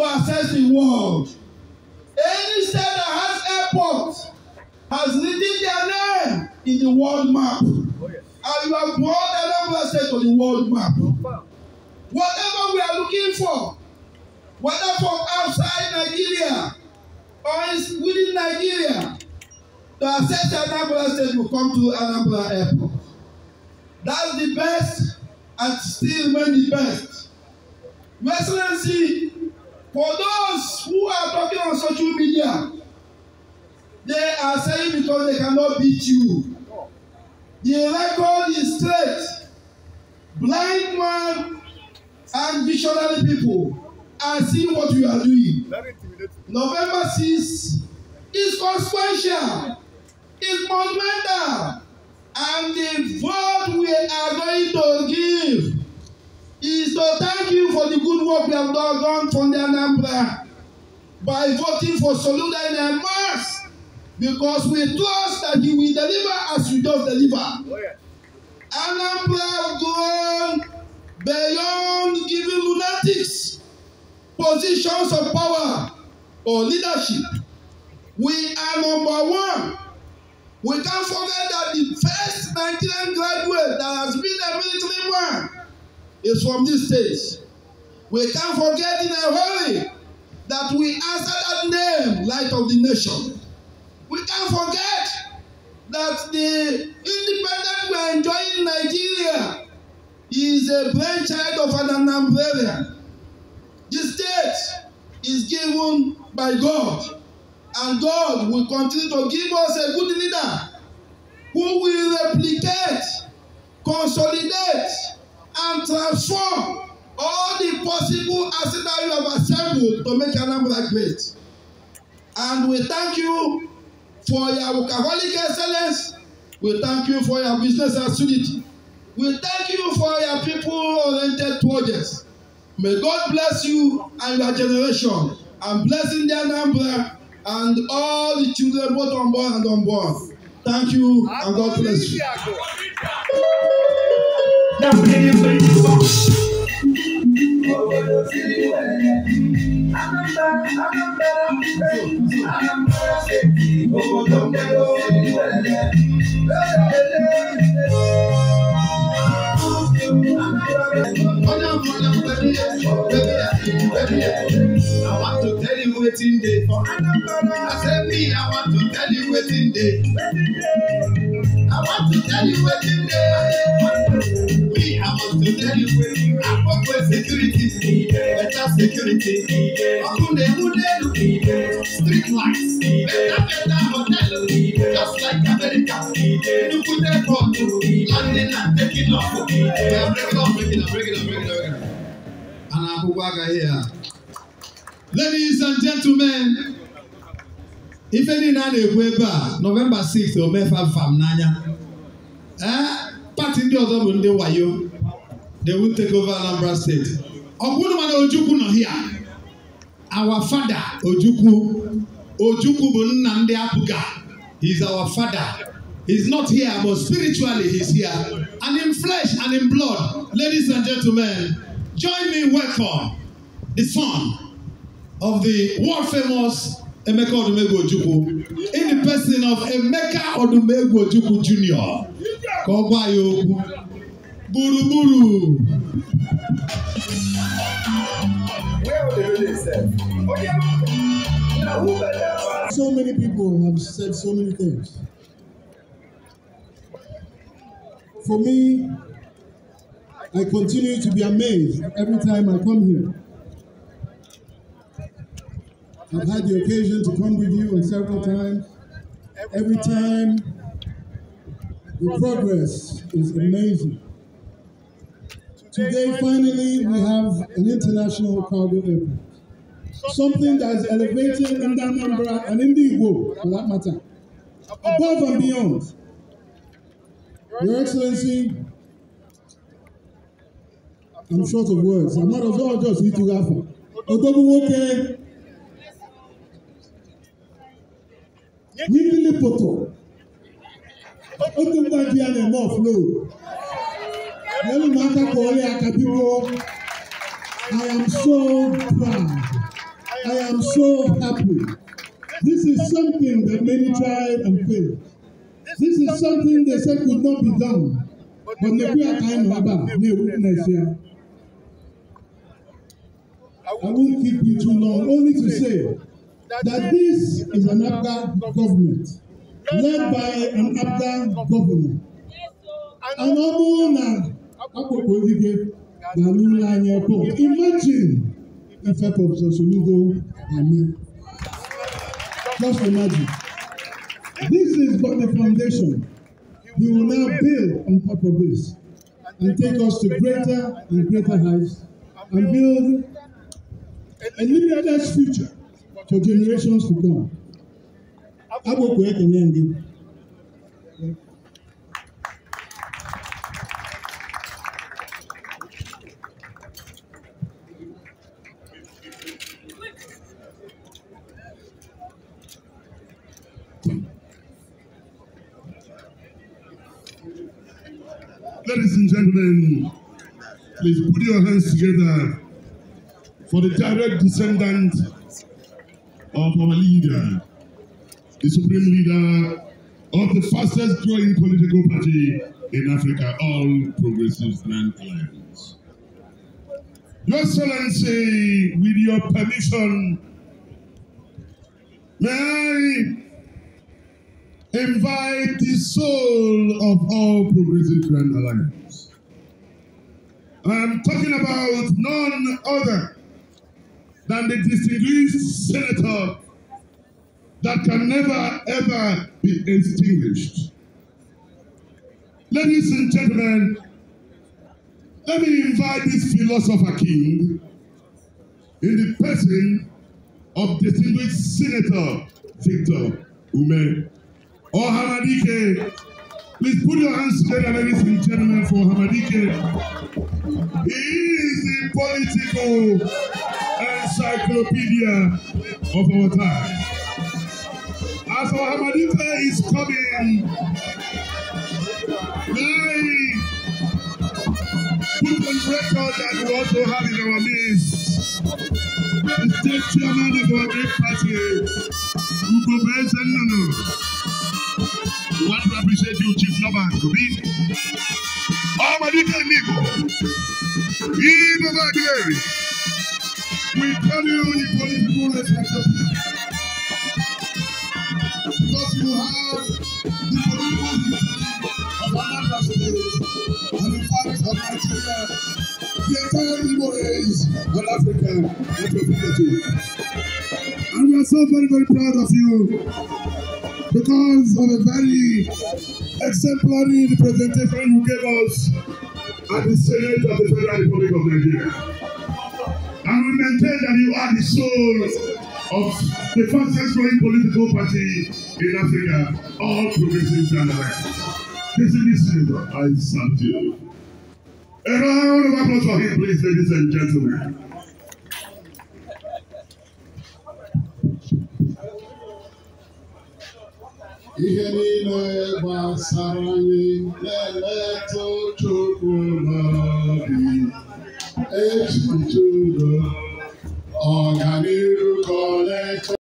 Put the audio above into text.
to access the world. Any state that has airport has written their name in the world map. Oh, yes. And you have brought another state to the world map. Whatever we are looking for, whether from outside Nigeria or within Nigeria, to access Anambra state will come to Anambra airport. That's the best and still remain the best. Excellency For those who are talking on social media, they are saying because they cannot beat you. The record is straight. Blind man and visionary people are seeing what you are doing. November 6 is consequential, It's monumental, and the vote we are going to give is to thank you for the good work we have done, done from the Anambra by voting for Soludo in a mass because we trust that you will deliver as you just deliver. Oh, yeah. Anambra gone beyond giving lunatics positions of power or leadership. We are number one. We can't forget that the first Nigerian graduate that has been a military man is from this stage. We can't forget in a hurry that we answer that name, Light of the Nation. We can't forget that the independence we are enjoying in Nigeria is a brainchild of an Anambrarian. The state is given by God, and God will continue to give us a good leader who will replicate, consolidate, transform all the possible accidents you have assembled to make number great. And we thank you for your workaholic excellence. We thank you for your business assiduity. We thank you for your people-oriented projects. May God bless you and your generation and blessing their number and all the children both unborn and unborn. Thank you and God bless you that pretty pretty box. What would you see when I'm back, I'm back, I'm back, Oh, don't get away when I want to tell you waiting day. I said I want to tell you waiting day. I want to tell you waiting day must be anyway. security, better security, better better hotel, just like America. Nnukwu airport, landing and taking off. Break it up, break it up, break it up, break it up. A na here. Ladies and gentlemen, If any a na-ekwu ebe a Nọvemba 6 omefa fam n'anya ee eh, pati ndị ọzọ bụ ndị wayo they will take over Anambra State. Ọ̀gbúnumàdà Ojukwu nọ hia. Our father Ojukwu. Ojukwu bụ nna ndị Apuga. He is our father. He's not here, but spiritually he's here. And in flesh and in blood, ladies and gentlemen, join me welcome the son of the world-famous Emeka Odumegwu Ojukwu in the person of Emeka Odumegwu Ojukwu Jr. Ka ọ gwa ya okwu. Buruburu. Oh, so many people have said so many things. For me, I continue to be amazed every time I come here. I've had the occasion to come with you on several times. Every time, the progress is amazing. Today, finally, we have an international cargo airport. Something that that's elevating Anambra and Indigbo, for that matter, above and beyond. Your Excellency, I'm short of words. I'm not of all just eating alpha. Odobuwoke, Nikili Poto, Otumba Diane Morph, no. Elimata Kole Akabiko, I am so proud. I am so happy. This is something that many tried and failed. This is something they said could not be done. But ne Nekwe Akaim Baba, ne Nebuchadnezzar. I won't keep you too long, only to say that this is an APGA government led by an APGA governor. And na akpọkpọ ogige na n'ụlọ anyị airport imagine ife prọfesọ solugo ame just imagine this is but the foundation he will now build on top of this and take us to greater and greater heights and build a limitless future for generations to come. Agbokwe ekele ndị. Ladies and gentlemen, please put your hands together for the direct descendant of our leader, the supreme leader of the fastest growing political party in Africa, All Progressives Land Alliance. Your Excellency, with your permission, may I invite the soul of all Progressive Grand Alliance. I'm talking about none other than the distinguished senator that can never ever be extinguished. Ladies and gentlemen, let me invite this philosopher king in the person of distinguished Senator Victor Ume or oh, Hamadike. Please put your hands together, ladies and gentlemen, for Hamadike. He is the political encyclopedia of our time. As our Hamadike is coming, I put on record that we also have in our midst the state chairman of our great party, Ugo Benson Nono. We want to appreciate you, Chief Noban Kubi. Ọmọdéke Níbo, yìí bàbá Adéèrè, we tell you you go to full responsibility. Because you have the political history of Our State and in fact of Nigeria, the entire Igbo race and Africa representative. And we are so very, very proud of you because of a very exemplary representation you gave us at the Senate of the Federal Republic of Nigeria. And we maintain that you are the soul of the fastest growing political party in Africa, all progressives and alliance. This is the reason I salute you. A round of applause for him, please, ladies and gentlemen. ihe niile gbasara anyị na-emetụ Chukwu n'obi echiche udo ọganiru ka ọ na-eche